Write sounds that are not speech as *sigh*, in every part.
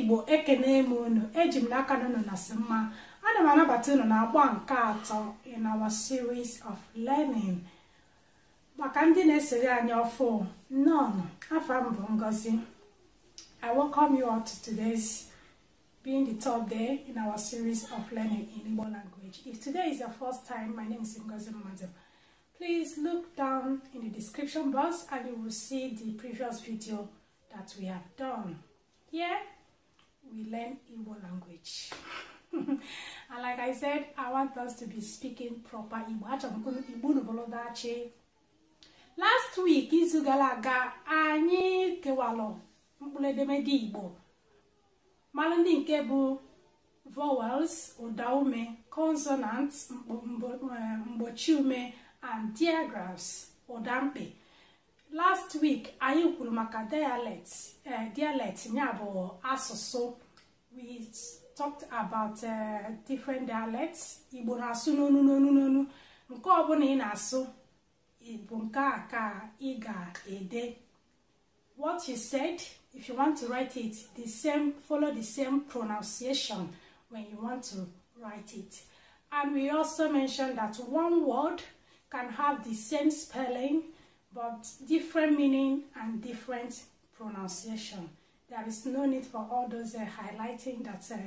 igbo ekene m ụnụ eji m n'aka na unu na nasị mma ana m anabata unu na agba nke atọ in our series of learning. maka ndị na-esere anyị ọfụ nnọọ afa m bụ ngozi i welcome you all to today's being the top day in our series of learning in Igbo language if today is your first time my name is ngozi mmadụ please look down in the description box and you will see the previous video that we have done here we learn Igbo language *laughs* and like I said, I want us to be speaking proper Igbo. Achọrọ m Igbo n'obodo achị last week izu gara aga anyị kewalụ mkpụrụ edemede igbo mara ndị nke bụ vowels ụdaume consonants eh, mgbochi ume and diagrams ụdamkpi last week anyị kwuru maka dialect eh, dialect ya bụ asụsụ we talked about eh, different dialects igbo na-asụ n'onu n'onu n'onu nke ọbụla ị na-asụ bụ nke a ka ị ga-ede what you said if you want to write it the same follow the same pronunciation when you want to write it and we also mentioned that one word can have the same spelling but different meaning and different pronunciation there is no need for all those uh, highlighting that uh,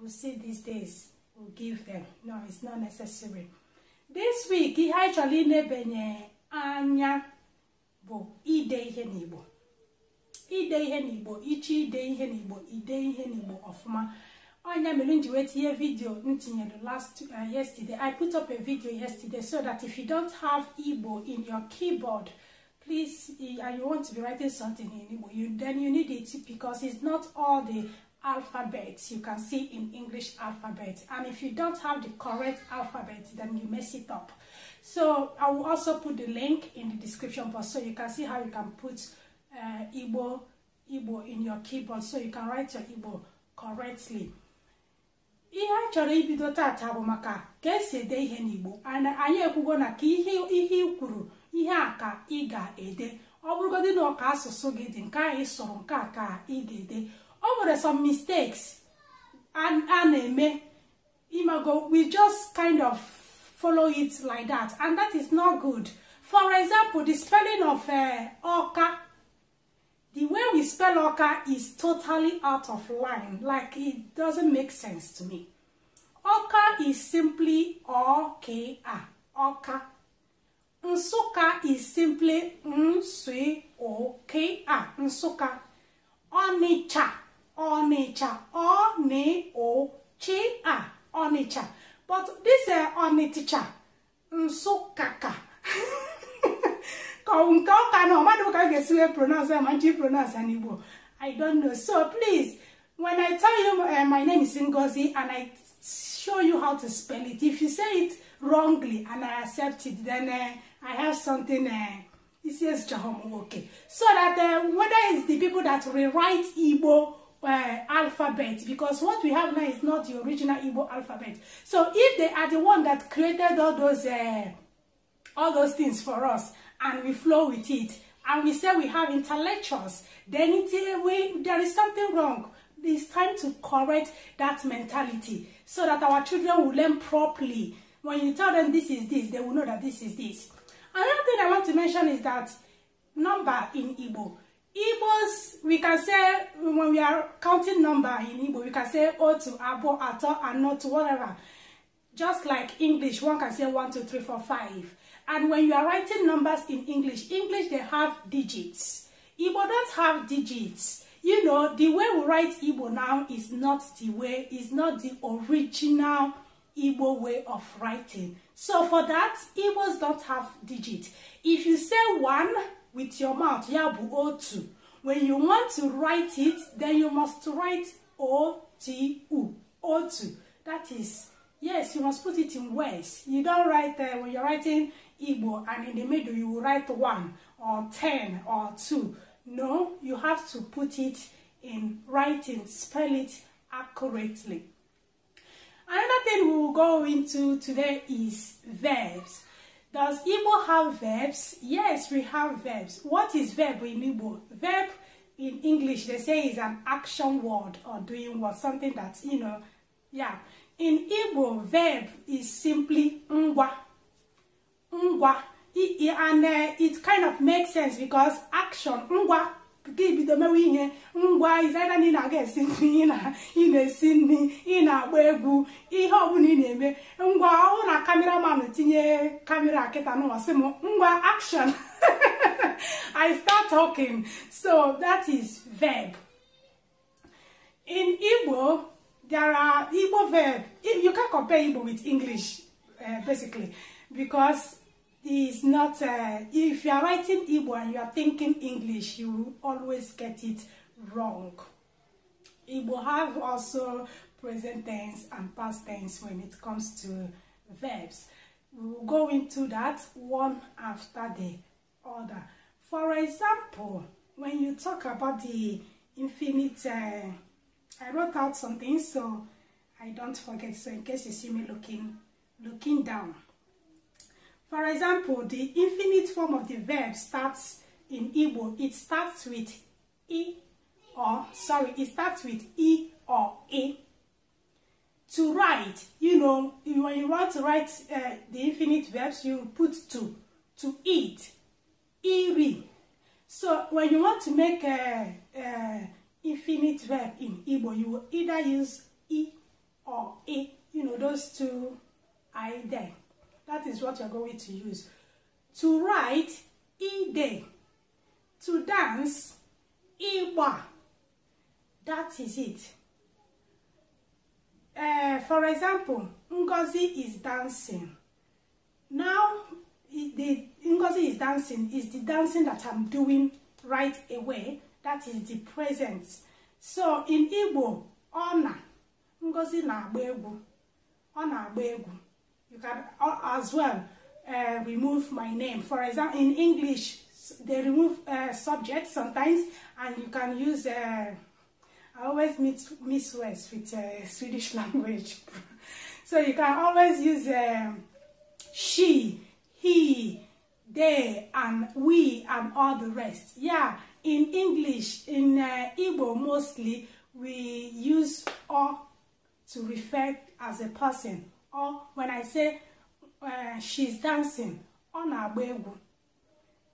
we see these days we will give them no it's not necessary this week ihe anyị chọrọ anya bụ ide ihe n'igbo ide ihe n'igbo ichi ide ihe n'igbo ide ihe n'igbo ọfụma ọnya mere m ji wee tinye vidio m tinyere last uh, yesterday i put up a video yesterday so that if you don't have igbo in your keyboard please and uh, you want to be writing something in igbo you then you need it because it's not all the Alphabet, you can see in English alphabet. And if you don't have the correct alphabet, then you mess it up. So I will also put the link in the description box so you can see how you can put uh, Igbo, Igbo in your keyboard so you can write your Igbo correctly. ihe a chọrọ ibido tata bụ maka ka esi ede ihe n'igbo anyị ekwugo na ka ihe ihe ikwuru ihe a ka ị ga-ede ọ bụrụgodị na ọka asụsụ gị dị nke anyị sụrụ nke a ka ị ga-ede o nwere some mistakes a na-eme imago we just kind of follow it like that and that is not good for example the spelling of uh, oka the way we spell oka is totally out of line like it doesn't make sense to me oka is simply oka oka Nsuka is simply N-S-U-K-A, Nsuka. Onitsha Onitsha, Oni O Chi A, Onitsha. But this uh, Onitsha, Nsukaka. *laughs* Kaunka ka no, madu ka gesiwe pronounce, manchi pronounce an Igbo. I don't know. So please, when I tell you uh, my name is Ngozi and I show you how to spell it, if you say it wrongly and I accept it, then uh, I have something. Uh, it says Jahom. Okay, so that uh, whether it's the people that rewrite Igbo uh, alphabet because what we have now is not the original Igbo alphabet. So if they are the one that created all those uh, all those things for us and we flow with it and we say we have intellectuals, then it, uh, we, there is something wrong. It's time to correct that mentality so that our children will learn properly. When you tell them this is this, they will know that this is this. Another thing I want to mention is that number in Igbo Igbos, we can say when we are counting number in Igbo, we can say otu, abo, ato, anotu, whatever. Just like English, one can say one, two, three, four, five. And when you are writing numbers in English, English they have digits. Igbo don't have digits. You know, the way we write Igbo now is not the way, is not the original Igbo way of writing. So for that, Igbos don't have digits. If you say one, with your mouth ya bụ otu when you want to write it then you must write o-t-u otu that is yes you must put it in words you don't write uh, when you're writing igbo and in the middle you will write one or ten or two no you have to put it in writing spell it accurately another thing we will go into today is verbs Does Igbo have verbs? Yes, we have verbs. What is verb in Igbo? Verb in English, they say is an action word or doing what, something that, you know, yeah. In Igbo, verb is simply ngwa. Ngwa. and uh, it kind of makes sense because action, ngwa, nke ibido mewe ihe ngwa izena na ị na-aga esi nri ị na-esi nri ị na-agba egwu ihe ọbụla ị na-eme ngwa ọhụrụ na kameraman tinye kamera kịta n'ụwasị m ngwa action *laughs* i start talking so that is verb in igbo there are igbo verb you can compare igbo with english uh, basically because is not, uh, if you are writing Igbo and you are thinking English, you will always get it wrong. Igbo have also present tense and past tense when it comes to verbs. We will go into that one after the other. For example, when you talk about the infinite, uh, I wrote out something so I don't forget. So in case you see me looking, looking down. For example, the infinite form of the verb starts in Igbo. It starts with e or, sorry, it starts with E or E. To write, you know, when you want to write uh, the infinite verbs, you put to. To eat, iri. So when you want to make a, a infinite verb in Igbo, you will either use e or E. You know, those two are there. That is what you're going to use. To write, ide. To dance, iwa. That is it. Uh, for example, Ngozi is dancing. Now, the Ngozi is dancing is the dancing that I'm doing right away. That is the present. So in Igbo, Ona, Ngozi na-agba egwu. Ọ na-agba egwu. You can uh, as well uh, remove my name. For example, in English, they remove uh, subjects sometimes, and you can use. Uh, I always meet miss words with uh, Swedish *laughs* language, so you can always use um, she, he, they, and we, and all the rest. Yeah, in English, in uh, Igbo mostly, we use or to refer as a person or when I say uh, she's dancing, ọ na-agba egwu.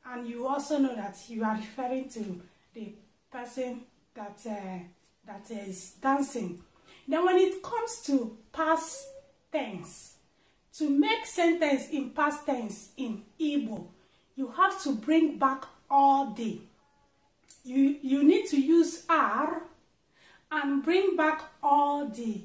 And you also know that you are referring to the person that uh, that is dancing. Then when it comes to past tense, to make sentence in past tense in Igbo, you have to bring back all the. You, you need to use R and bring back all the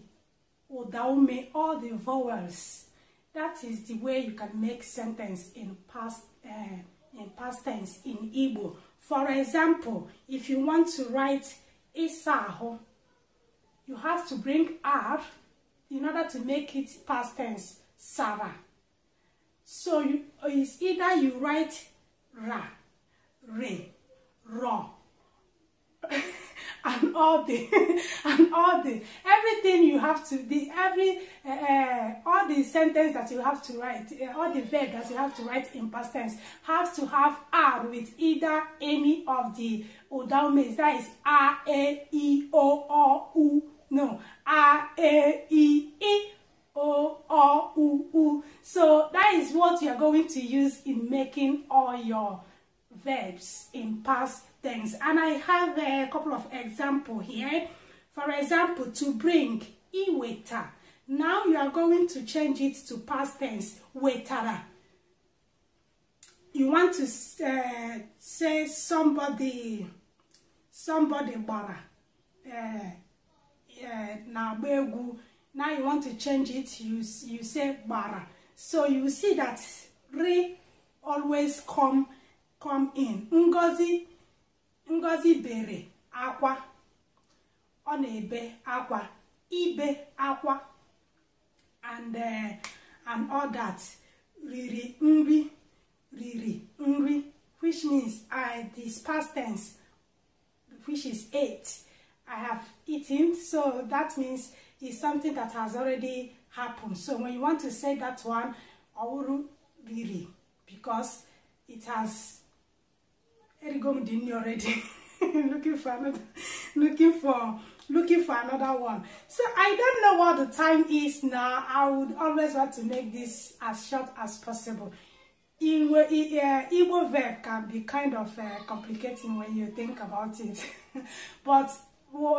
Odaume all the vowels. That is the way you can make sentence in past uh, in past tense in Igbo. For example, if you want to write Isaho, you have to bring R in order to make it past tense Sarah. So you, it's either you write Ra and all the *laughs* and all the everything you have to the every uh, all the sentence that you have to write uh, all the verb that you have to write in past tense have to have r with either any of the odaumes that is r a e o o u no r a e e o o u u so that is what you are going to use in making all your verbs in past tense. And I have a couple of example here. For example, to bring, iweta. Now you are going to change it to past tense, wetara. You want to uh, say somebody, somebody bara, uh, uh, na Now you want to change it, you, you say bara. So you see that re always come come in ngozi ngozi bere akwa ọ na-ebe akwa ibe akwa and uh, and all that riri nri riri nri which means I this past tense which is ate I have eaten so that means it's something that has already happened so when you want to say that one ọwụrụ riri because it has Erigom Dini already. *laughs* looking for another, looking for looking for another one. So I don't know what the time is now. I would always want to make this as short as possible. Igbo, Igbo verb can be kind of uh, complicating when you think about it. *laughs* but uh,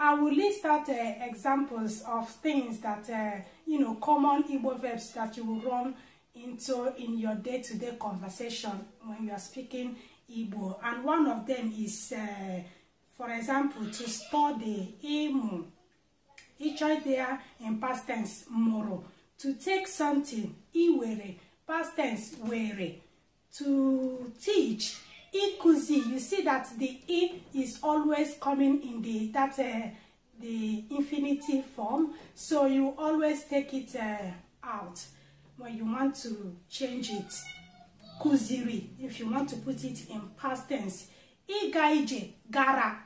I will list out uh, examples of things that, uh, you know, common Igbo verbs that you will run into in your day-to-day -day conversation when you are speaking Igbo, and one of them is, uh, for example, to store study Imo. Each idea in past tense moro. To take something iwere, past tense were. To teach ikuzi. You see that the e is always coming in the that uh, the infinitive form, so you always take it uh, out when you want to change it. kụziri if you want to put it in past tense ịga gara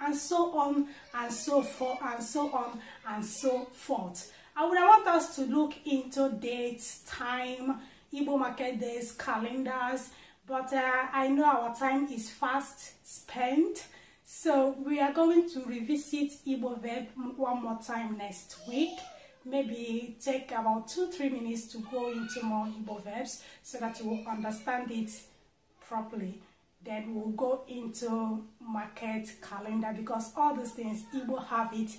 and so on and so forth and so on and so forth i would want us to look into dates time Igbo market days calendars but uh, i know our time is fast spent so we are going to revisit Igbo verb one more time next week maybe take about two, three minutes to go into more Igbo verbs so that you will understand it properly. Then we'll go into market calendar because all these things Igbo have it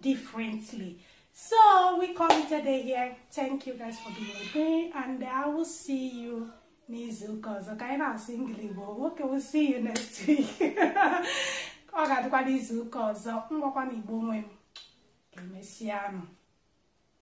differently. So we call it a day here. Thank you guys for being with me and I will see you n'izu ụka I ka anyị na-asụ ngili will see you next week. *laughs* o